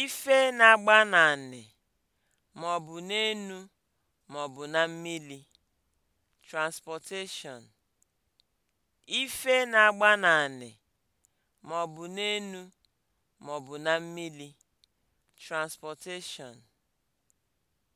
Ife na-agba n'anị maọbụ n'enu maọbụ na mmili. Transportation. Ife na-agba na mmili. Transportation.